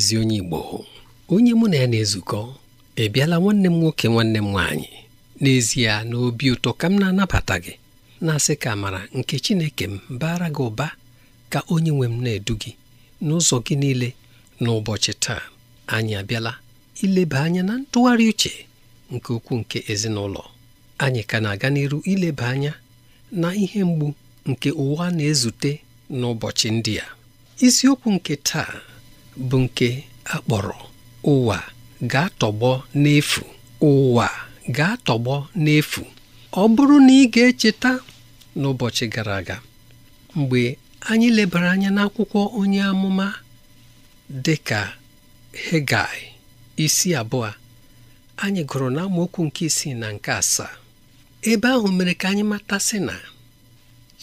ezi onye Igbo onye mụ na ya na-ezukọ ị bịala nwanne m nwoke nwanne m nwaanyị n'ezie na obi ụtọ ka m na-anabata gị na-asị ka amara nke Chineke m baara gị ụba ka onye nwe m na-edu gị n'ụzọ gị niile n'ụbọchị taa anyị abịala ileba anya na ntụgharị uche nke ukwuu nke ezinụlọ anyị ka na-aga n'iru ileba anya na ihe mgbu nke ụwa na-ezute n'ụbọchị ndị a isiokwu nke taa bụ nke akpọrọ ụwa ga-atọgbọ n'efu ụwa ga-atọgbọ n'efu ọ bụrụ na ị ga-echeta n'ụbọchị gara aga mgbe anyị lebara anya n'akwụkwọ onye amụma dị ka Hegai isi abụọ anyị gụrụ na nke isii na nke asaa ebe ahụ mere ka anyị matasị na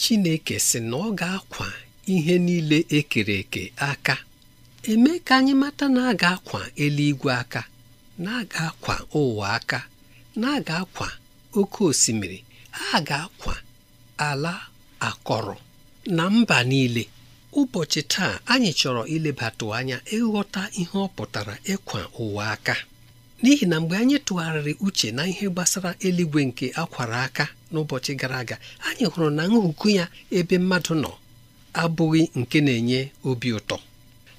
Chineke sị na ọ ga-akwa ihe niile ekere eke aka eme ka anyị mata na aga akwa eluigwe aka na aga akwa ụwa aka na aga akwa oke osimiri a ga-akwa ala akọrọ na mba niile ụbọchị taa anyị chọrọ ilebatụ anya ịghọta ihe ọ pụtara ịkwa ụwa aka n'ihi na mgbe anyị tụgharịrị uche na ihe gbasara eluigwe nke akwara aka n'ụbọchị gara aga anyị hụrụ na nhụkụ ya ebe mmadụ nọ abụghị nke na-enye obi ụtọ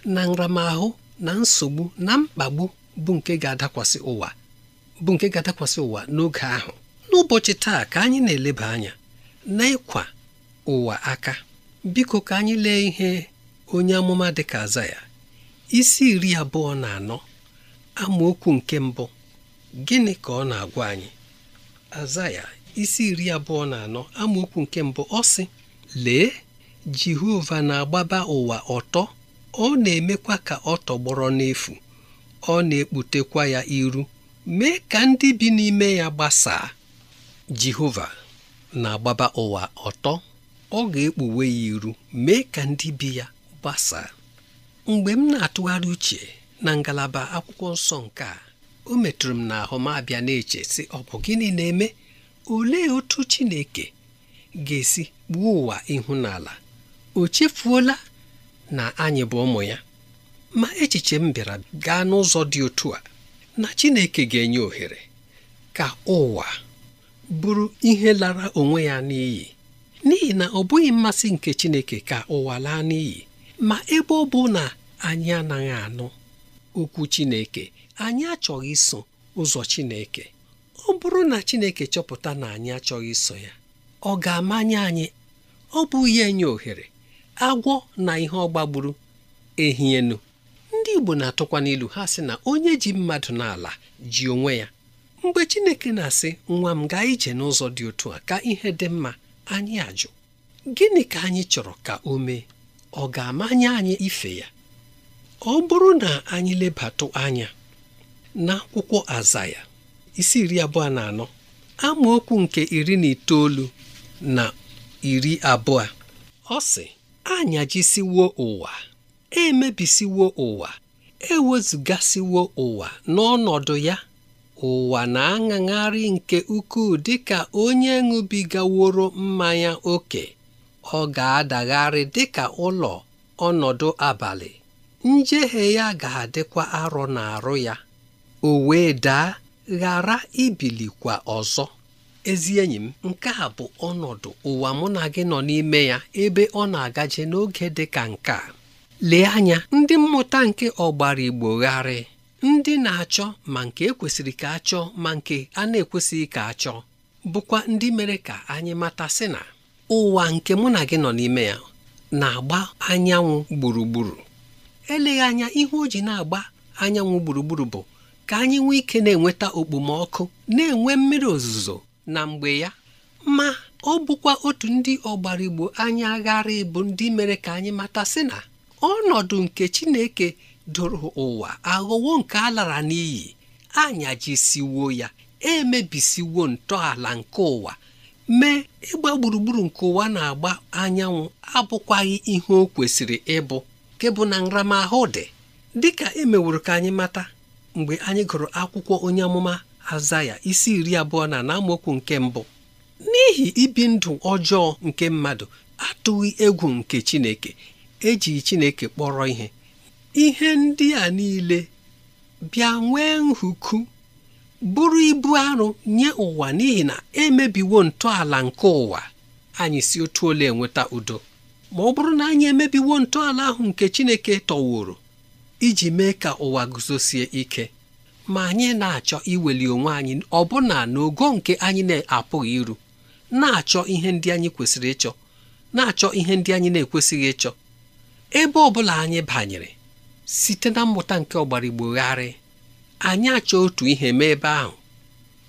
na nramahụ na nsogbu na mkpagbu bụ nke ga-adakwasị ụwa n'oge ahụ n'ụbọchị taa ka anyị na-eleba anya na n'ịkwa ụwa aka biko ka anyị lee ihe onye amụma dịka aza ya isi iri abụọ na anọ amaokwu nke mbụ gịnị ka ọ na-agwa anyị aza isi iri abụọ na anọ amaokwu nke mbụ ọ sị lee Jehova na-agbaba ụwa ọtọ ọ na-emekwa ka ọ tọgbọrọ n'efu ọ na-ekputekwa ya iru mee ka ndị bi n'ime ya gbasaa Jehova na-agbaba ụwa ọtọ ọ ga-ekpuwe ya iru mee ka ndị bi ya gbasaa mgbe m na-atụgharị uche na ngalaba akwụkwọ nsọ nke a o metụrụ m n'ahụ m abịa na-eche sị ọ bụ gịnị na-eme olee otu Chineke ga-esi gbuo ụwa ihu o chefuola na anyị bụ ụmụ ya ma echiche m bịara gaa n'ụzọ dị otu a na Chineke ga-enye ohere ka ụwa bụrụ ihe lara onwe ya n'iyi n'ihi na ọ bụghị mmasị nke Chineke ka ụwa laa n'iyi ma ebe ọ bụ na anyị anaghị anụ okwu Chineke anyị achọghị iso ụzọ Chineke ọ bụrụ na Chineke chọpụta na anyị achọghị iso ya ọ ga-amanye anyị ọ bụ ihe nye ohere agwọ na ihe ọgbagburu ehi enu ndị Igbo na-atụkwa n'ilu ha sị na onye ji mmadụ n'ala ji onwe ya mgbe Chineke na-asị nwa m gaa ije n'ụzọ dị otu a ka ihe dị mma anyị ajụ gịnị ka anyị chọrọ ka o mee ọ ga-amanye anyị ife ya ọ bụrụ na anyị lebatụ anya n'akwụkwọ Azaya isi iri abụọ na anọ amaokwu nke iri na itoolu na iri abụọ ọ si anyajisiwo ụwa emebisiwo ụwa ewezụgasiwo ụwa n'ọnọdụ ya ụwa na-aṅagharị nke ukwuu dịka onye ṅụbigaworo mmanya ókè ọ ga-adagharị dịka ụlọ ọnọdụ abalị njehie ya ga-adịkwa arọ arụ ya o wee daa ghara ibilikwa ọzọ ezi enyi m nke a bụ ọnọdụ ụwa mụ na gị nọ n'ime ya ebe ọ na-agaje n'oge dị ka nke a. lee anya ndị mmụta nke ọgbara igbo gharị ndị na-achọ ma nke ekwesịrị ka achọọ ma nke a na-ekwesịghị ka achọọ bụkwa ndị mere ka anyị mata sị na ụwa nke mụ na gị nọ n'ime ya na-agba anyanwụ gburugburu eleghị anya ihe o ji na-agba anyanwụ gburugburu bụ ka anyị nwee ike na-enweta okpomọkụ na-enwe mmiri ozuzo na mgbe ya ma ọ bụkwa otu ndị ọgbarigbo anyị aghara ịbụ ndị mere ka anyị mata sị na ọnọdụ nke Chineke doro ụwa aghọwo nke a lara n'iyi anyajisiwo ya emebisiwo ntọala nke ụwa mee ịgba gburugburu nke ụwa na-agba anyanwụ abụkwaghị ihe o kwesịrị ịbụ nke na nramahụ dị dịka emeworo ka anyị mata mgbe anyị gụrụ akwụkwọ onye amụma azaya isi iri abụọ na na nke mbụ n'ihi ibi ndụ ọjọọ nke mmadụ atụghị egwu nke Chineke eji Chineke kpọrọ ihe ihe ndị a niile bịa nwee nhuku bụrụ ibu arụ nye ụwa n'ihi na emebiwo ntọala nke ụwa anyị si otu ole enweta udo ma ọ bụrụ na anyị emebiwo ntọala ahụ nke Chineke tọworo iji mee ka ụwa guzosie ike ma anyị na-achọ iweli onwe anyị ọbụna n'ogo nke anyị na-apụghị iru na-achọ ihe ndị anyị kwesịrị ịchọ na-achọ ihe ndị anyị na-ekwesịghị ịchọ ebe ọ bụla anyị banyere site na mmụta nke ọgbara igbogharị anyị achọ otu ihe mee ebe ahụ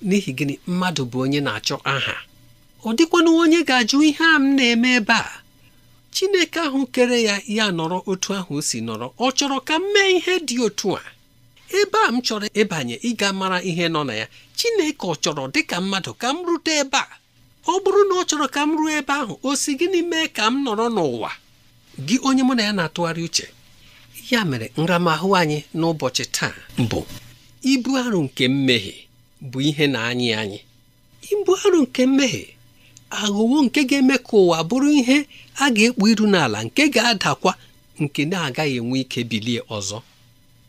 n'ihi gịnị mmadụ bụ onye na-achọ aha ọ dịkwana onye ga-ajụ ihe a m na-eme ebe a Chineke ahụ kere ya ya nọrọ otu ahụ o si nọrọ ọ chọrọ ka m mee ihe dị otu a ebe a m chọrọ ịbanye ịga mara ihe nọ na ya Chineke ọ chọrọ dị ka mmadụ ka m rute ebe a ọ bụrụ na ọ chọrọ ka m ruo ebe ahụ o si gịnị mee ka m nọrọ n'ụwa gị onye mụ na ya na-atụgharị uche ya mere nramahụ anyị n'ụbọchị taa bụ ibu arụ nke mmehie bụ ihe na-anyị anyị ibu arụ nke mmehie aghụghọ nke ga-eme ka ụwa bụrụ ihe a ga-ekpu iru n'ala nke ga-adakwa nke na-agaghị enwe ike bilie ọzọ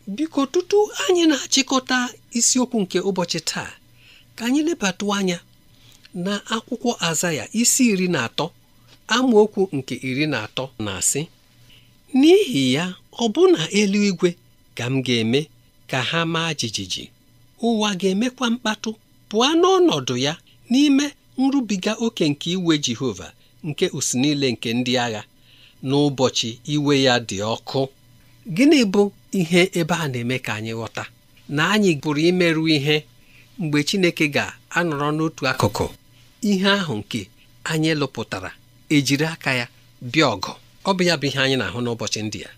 biko tutu anyị na-achịkọta isiokwu nke ụbọchị taa ka anyị lebatụ anya na akwụkwọ ya isi iri na atọ amaokwu nke iri na atọ na-asị n'ihi ya ọbụna eluigwe ka m ga-eme ka ha maa jijiji ụwa ga-emekwa mkpatụ pụọ n'ọnọdụ ya n'ime nrubiga oke nke iwe Jehova nke us niile nke ndị agha n'ụbọchị iwe ya dị ọkụ gịnị bụ ihe ebe a na-eme ka anyị ghọta na anyị pụrụ imerụ ihe mgbe Chineke ga-anọrọ n'otu akụkụ ihe ahụ nke anyị lụpụtara ejiri aka ya bịa ọgụ ọ bụ ya bụ ihe anyị na-ahụ n'ụbọchị ndị a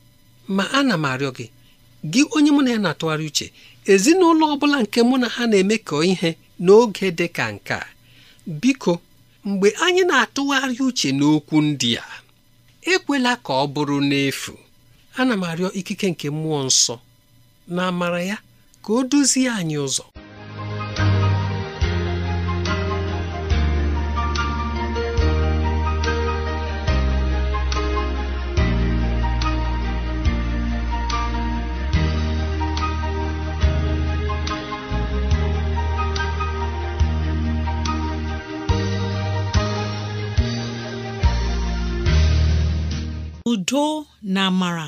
ma ana m arịọ gị gị onye mụ na ya na-atụgharị uche ezinụlọ ọ bụla nke mụ na ha na eme ka ihe n'oge dị ka nke a biko mgbe anyị na-atụgharị uche n'okwu ndị a ekwela ka ọ bụrụ n'efu ana m arịọ ikike nke mmụọ nsọ na amara ya ka o duzie anyị ụzọ udo na amara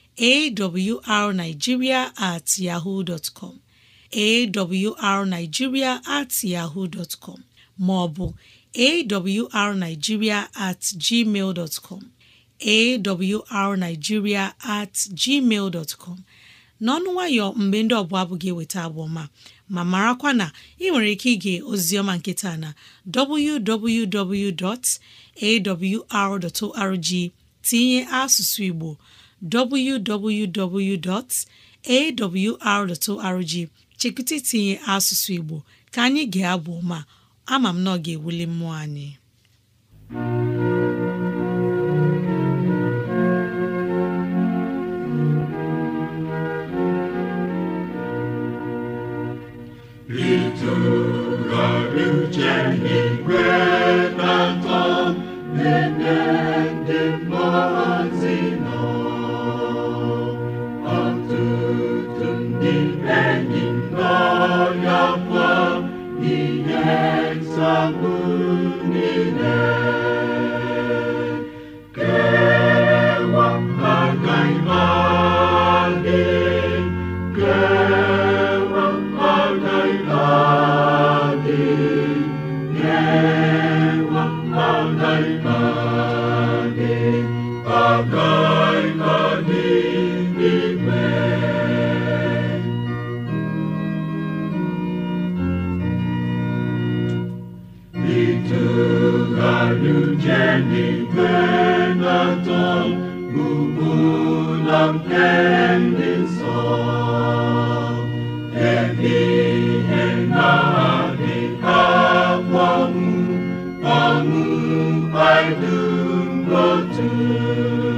awrnigeria at yahoo dot com awrnigeria at yahoo dot maọbụ awrnigeria at gmail dot com at gmail dot n'ọnụ nwayọ mgbe ndị ọbụla abụghị eweta abụọma ma marakwa na ị nwere ike ige ozioma nkịta na www.awr.org tinye asụsụ Igbo www.awr.org chekwụta itinye asụsụ Igbo ka anyị ga-abụ ma ama m na ọ ga-ewuli mmụọ anyị Música you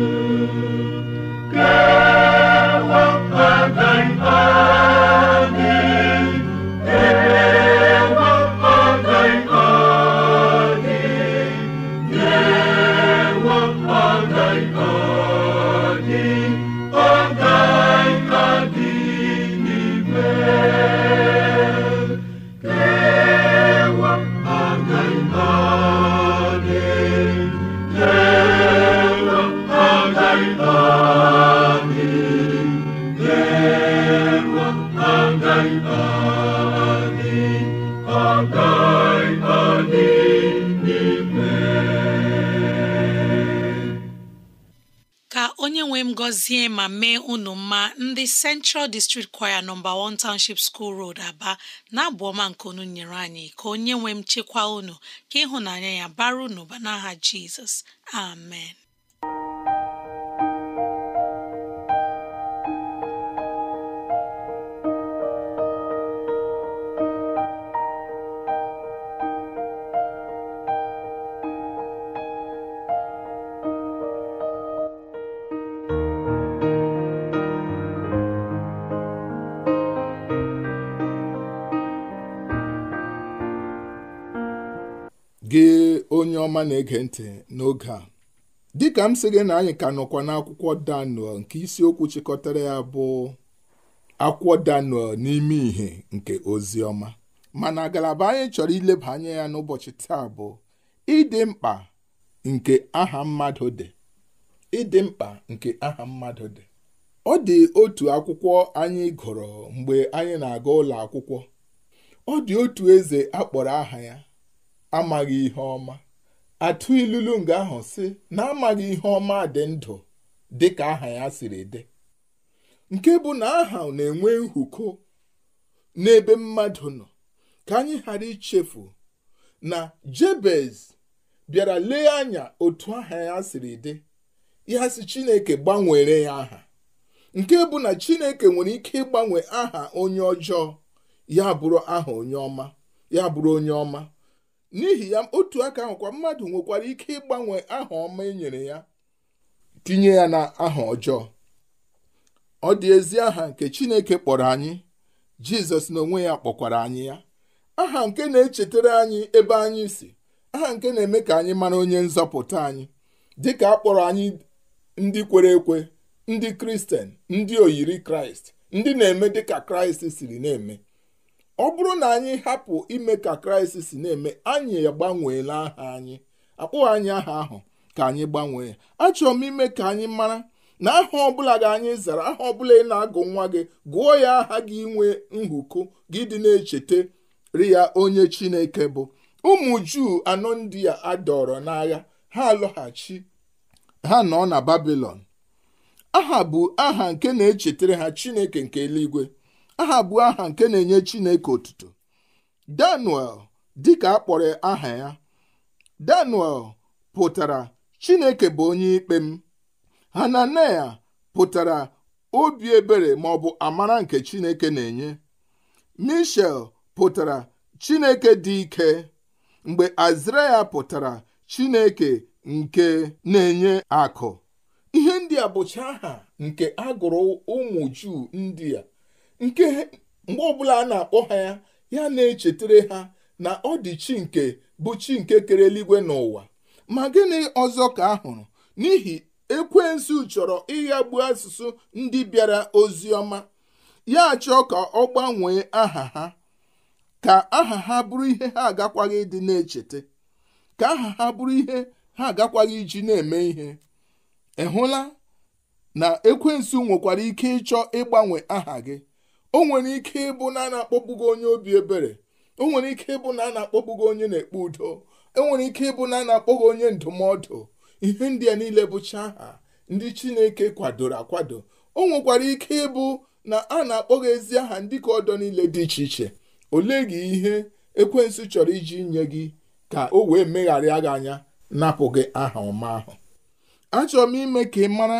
gọzie ma mee unu mma ndị Central District Choir nọmba one Township School Road Aba na-abụ ọma nke unu nyere anyị ka onye nwee m chekwa unu ka ịhụnanya ya bara unu ba n'aha Jizọs amen ọma na-ege ntị n'oge a dịka m sị gị na anyị ka nọkwa n'akwụkwọ Daniel nke isiokwu chịkọtara ya bụ akwụkwọ Daniel n'ime ìhè nke ozi ọma mana ngalaba anyị chọrọ ileba anya ya n'ụbọchị taa bụ ịdị mkpa nke aha mmadụ dị ịdị mkpa nke aha mmadụ dị ọ dị otu akwụkwọ anyị gụrụ mgbe anyị na-aga ụlọ akwụkwọ ọ dị otu eze akpọrọ aha ya amaghị ihe ọma atụ ilulu nga ahụ si na amaghị ihe ọma dị ndụ dịka aha ya siri dị nke bụ na aha na-enwe nhuko n'ebe mmadụ nọ ka anyị ghara ichefu na jebez bịara lee anya otu aha ya siri dị ya si chineke gbanwere ya aha nke bụ na chineke nwere ike ịgbanwe aha onye ọjọọ ya bụrụ aha onye ọma ya bụrụ onye ọma n'ihi ya otu aka kwa mmadụ nwekwara ike ịgbanwe aha ọma e nyere ya tinye ya na aha ọjọọ ọ dị ezi aha nke Chineke kpọrọ anyị Jizọs na onwe ya kpọkwara anyị ya aha nke na-echetara anyị ebe anyị si aha nke na-eme ka anyị mara onye nzọpụta anyị dịka a kpọrọ anyị ndị kwere ekwe ndị kristian ndị oyiri kraịst ndị na-eme dịka kraịst siri na-eme ọ bụrụ na anyị hapụ ime ka kraịst si na-eme anyị gbanweela aha anyị akpụghị anyị aha ahụ ka anyị gbanwee ya achọrọ m ime ka anyị mara na aha ọbụla gị anyị zara aha ọbụla ị na-agụ nwa gị gụọ ya aha gị inwe nhụkụ gị dị na echetere ya onye chineke bụ ụmụ juu anọ ndị a adọrọ n'agha ha alọghachi ha nọ na babilon aha bụ aha nke na-echetara ha chineke nke eluigwe aha bụ aha nke na-enye Chineke otuto Daniel dịka a kpọrọ aha ya Daniel pụtara Chineke bụ onye ikpe m ya pụtara obi ebere ma ọ bụ amara nke Chineke na-enye Mishael pụtara Chineke dị ike mgbe Azraya pụtara Chineke nke na-enye akụ ihe ndị a bụcha aha nke agụrụ ụmụ Juu ndị a nke mgbe ọbụla a na-akpọ ha ya ya na-echetere ha na ọ dị chi nke bụ chi nke kere eluigwe n'ụwa ma gịnị ọzọ ka a hụrụ n'ihi ekwensu chọrọ ịghagbu asụsụ ndị bịara ozi ọma ya chọọ ka ọ gbanwee aha ha ka aha ha bụrụ ihe ha agakwaghị ịdị na-echeta ka aha ha bụrụ ihe ha agakwaghị iji na-eme ihe ị hụla na ekwensu nwekwara ike ịchọ ịgbanwe aha gị o nwere ike ịbụ na a na-akpọgbugo onye obi ebere o nwere ike ịbụ na a na-akpọgbugo onye na-ekpe udo e nwere ike ịbụ na a na-akpọghị onye ndụmọdụ ihe ndị a niile bụcha aha ndị chineke kwadoro akwado o nwekwara ike ịbụ na a na-akpọghị ezi aha ndị ka ọdọ niile dị iche iche olee gị ihe ekwensu chọrọ iji nye gị ka o wee megharịa gị anya napụ gị aha ọma ahụ achọrọ m ime ka ị mara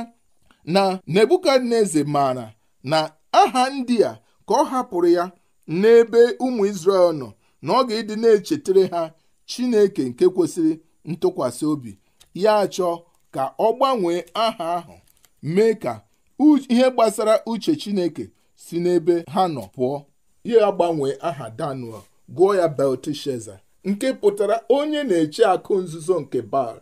na nebukadneze maara na aha ndị a ka ọ hapụrụ ya n'ebe ụmụ isrel nọ na ọ ga-ịdị na-echetere ha Chineke nke kwesịrị ntụkwasị obi ya chọọ ka ọ gbanwee aha ahụ mee ka ihe gbasara uche Chineke si n'ebe ha nọ pụọ ya gbanwee aha Daniel gụọ ya Belteshaza nke pụtara onye na-eche akụ nzuzo nke bal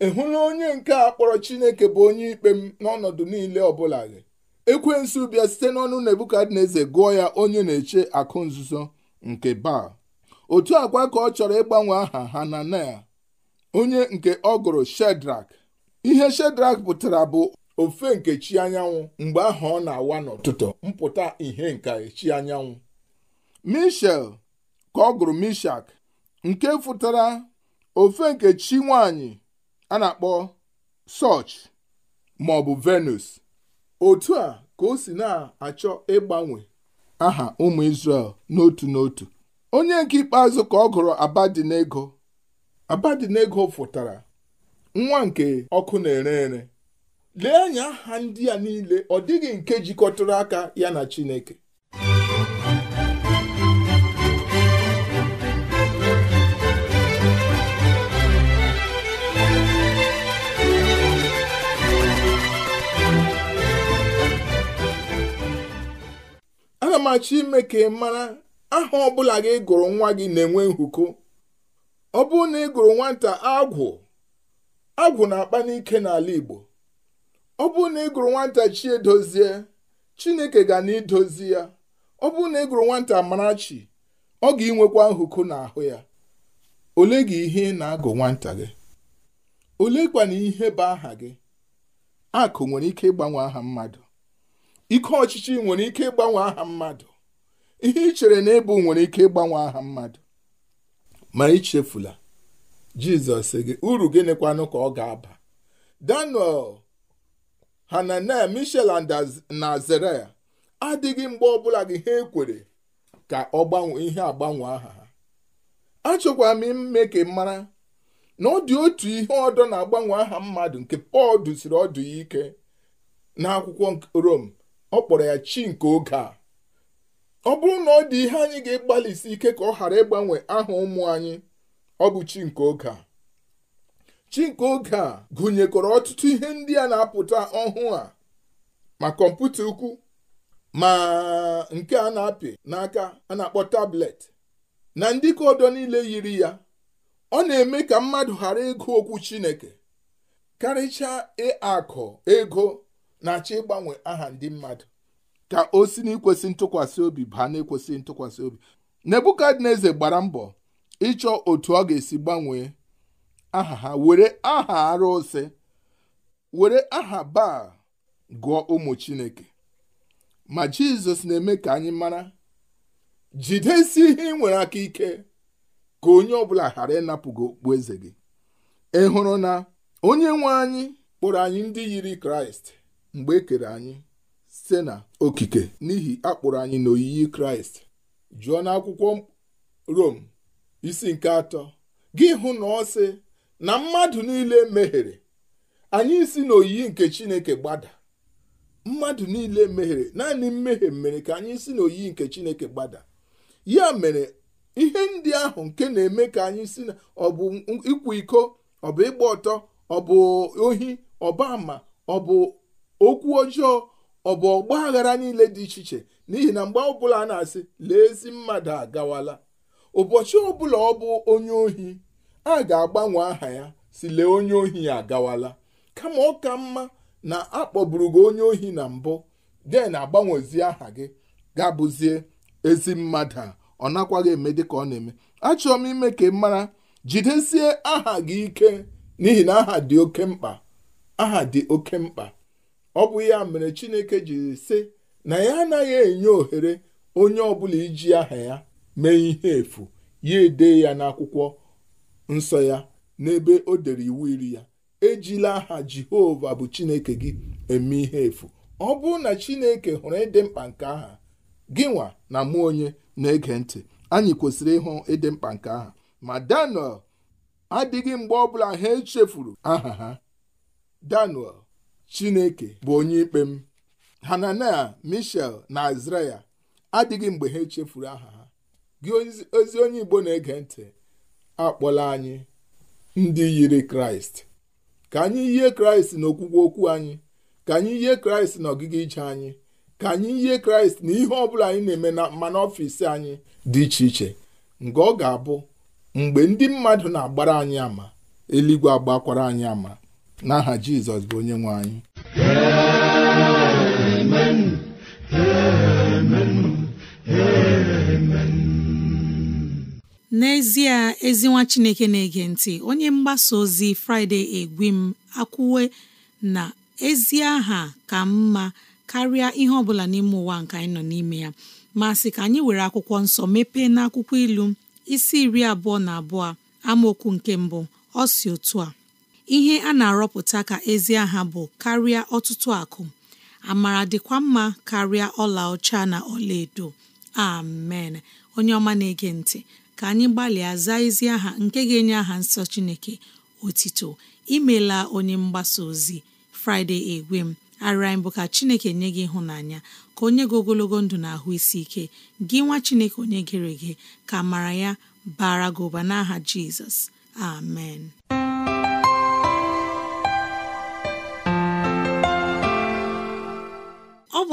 ị hụla onye nke a kpọrọ Chineke bụ onye ikpe m n'ọnọdụ niile ọbụla gị ekwensụ bịa site n'ọnụ na eze gụọ ya onye na-eche akụ nzuzo nke baal otu akwa ka ọ chọrọ ịgbanwe aha ha hananel onye nke ọ gụrụ shedrak ihe shedrak pụtara bụ ofe nke chi anyanwụ mgbe ahụ ọ na-awa n'ụtụtụ mpụta ihe nka chi anyanwụ mishel ka ọ gụrụ mishak nke fụtara ofe nke chi nwanyị a na-akpọ soch ma venus otu a ka o si na-achọ ịgbanwe aha ụmụ Izrel n'otu n'otu onye nke ikpeazụ ka ọ gụrụ Abadinego Abadinego fụtara nwa nke ọkụ na-ere ere lee anya aha ndị a niile ọ dịghị nke jikọtara aka ya na Chineke ana m achọ ime ka ị mara aha ọbụla gị gụrụ nwa gị na-enwe nhuko ọ bụrụ na ị gụrụ nwata agwụ agwụ na-akpa n'ike n'ala Igbo ọ bụrụ na ị gụrụ nwata chi edozie Chineke ga na idozi ya ọ bụrụ na ị gụrụ nwata marachi ọ ga-inwekwa nhuko n'ahụ ya ole gị ihe na-agụ nwata gị ole kwana ihe bụ aha gị akụ nwere ike ịgbanwe aha mmadụ ike ọchịchị nwere ike ịgbanwe aha mmadụ ihe ị chere na ịbụ nwere ike ịgbanwe aha mmadụ ma ichefula jizọs gị uru gịnịkwanụ ka ọ ga-aba daniel hananel mishel na azaraya adịghị mgbe ọbụla gị ha ekwere ka ọ gbanwee ihe agbanwe aha ha achọkwara m ime ka mara na ọ dị otu ihe ọdọ na-agbanwe aha mmadụ nke pọl dụsiri ọdụ ya ike n'akwụkwọ rom ọ kpọrọ ya chi nke oge a ọ bụrụ na ọ dị ihe anyị ga-agbalịsi ike ka ọ ghara ịgbanwe aha ụmụ anyị ọ bụ chi nke oge a chi nke oge a gụnyekọrọ ọtụtụ ihe ndị a na-apụta ọhụụ a ma kọmputa ukwu ma nke a na-apị n'aka a na-akpọ tablet na ndị ka ọdọ niile yiri ya ọ na-eme ka mmadụ ghara ịgụ okwu Chineke karịchaa akọ ego na-achọ ịgbanwe aha ndị mmadụ ka o si n'ikwesị ntụkwasị obi baa n'ekwesị ntụkwasị obi nebukadneza gbara mbọ ịchọ otu ọ ga-esi gbanwee aha ha were aha arụsị were aha baa gụọ ụmụ chineke ma jizọs na-eme ka anyị mara jidesi ihe ị nwere aka ike ka onye ọbụla ghara ịnapụ gị okpu eze gị ị hụrụ na onye nwe anyị kpọrọ anyị ndị yiri kraịst mgbe e kere anyị site na okike n'ihi akpụrụ anyị na n'oyiyi kraịst jụọ akwụkwọ rom isi nke atọ gị hụ na ọ sị na mmadụ niile mehere anyị si n'oyiyi nke chineke gbada mmadụ niile mehere naanị mmehie mere ka anyị si n'oyiyi nke chineke gbada ya mere ihe ndị ahụ nke na-eme ka anyị si na ọ bụ ịkwa iko ọ bụ ịgba ọtọ ọ bụ ohi ọba ama ọ bụ okwu ọjọọ ọ bụ ọgba aghara niile dị iche iche n'ihi na mgbe ọbụla a na-asị lee ezi mmadụ agawala ụbọchị ọbụla ọ bụ onye ohi a ga-agbanwe aha ya si lee onye ohi agawala kama ọ ka mma na akpọburu gị onye ohi na mbụ den agbanwezi aha gị gabụzie abụzie ezi mmadụ a ọ nakwaghị eme dị ka ọ na-eme achọrọ m ime ka mara jidesie aha gị ike n'ihi na aha dị oke mkpa aha dị oke mkpa ọ bụ ya mere chineke jiri sị na ya anaghị enye ohere onye ọbụla iji aha ya mee ihe efu ya ede ya n'akwụkwọ nsọ ya n'ebe o dere iwu iri ya ejila aha jehova bụ chineke gị eme ihe efu ọ bụrụ na chineke hụrụ ịdị mkpa nke aha gị nwa na mụ onye na-ege ntị anyị kwesịrị ịhụ ịdị mkpa nke aha ma daniel adịghị mgbe ọbụla ha echefuru aha ha daniel chineke bụ onye ikpe m hananel mishel na azraya adịghị mgbe ha echefuru aha ha gị ozi onye igbo na-ege ntị akpọla anyị ndị yiri kraịst ka anyị yie kraịst na okwukwe okwu anyị ka anyị yie kraịst na ije anyị ka anyị yie kraịst na ihe ọbụla anyị na-eme na mmanụ ọfịs anyị dị iche iche nke ọ ga-abụ mgbe ndị mmadụ na-agbara anyị ama eluigwe agbakwara anyị ama n'aha jizọs bụ onye nwe anyị n'ezie ezi nwa chineke na-ege ntị onye mgbasa ozi fraịde egwi m akwụwe na ezi aha ka mma karịa ihe ọbụla n'ime ụwa nke anyị nọ n'ime ya ma sị ka anyị were akwụkwọ nsọ mepee n'akwụkwọ ilu isi iri abụọ na abụọ amaokwu nke mbụ ọ si otu a ihe a na-arọpụta ka ezi aha bụ karịa ọtụtụ akụ amara dịkwa mma karịa ọla ọcha na ọlaedo amen onye ọma na-ege ntị ka anyị gbalịa zaa ezi aha nke ga-enye aha nsọ Chineke otito imela onye mgbasa ozi Friday egwem arịa mbụ ka Chineke nye gị ịhụnanya ka onye gị ogologo ndụ na ahụ isi ike gị nwa Chineke onye gere gị ka mara ya bara gị ụba n'aha Jizọs amen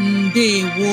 ndewo